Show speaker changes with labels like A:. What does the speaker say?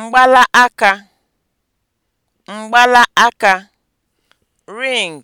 A: Mgbala aka, mgbala aka, (ring)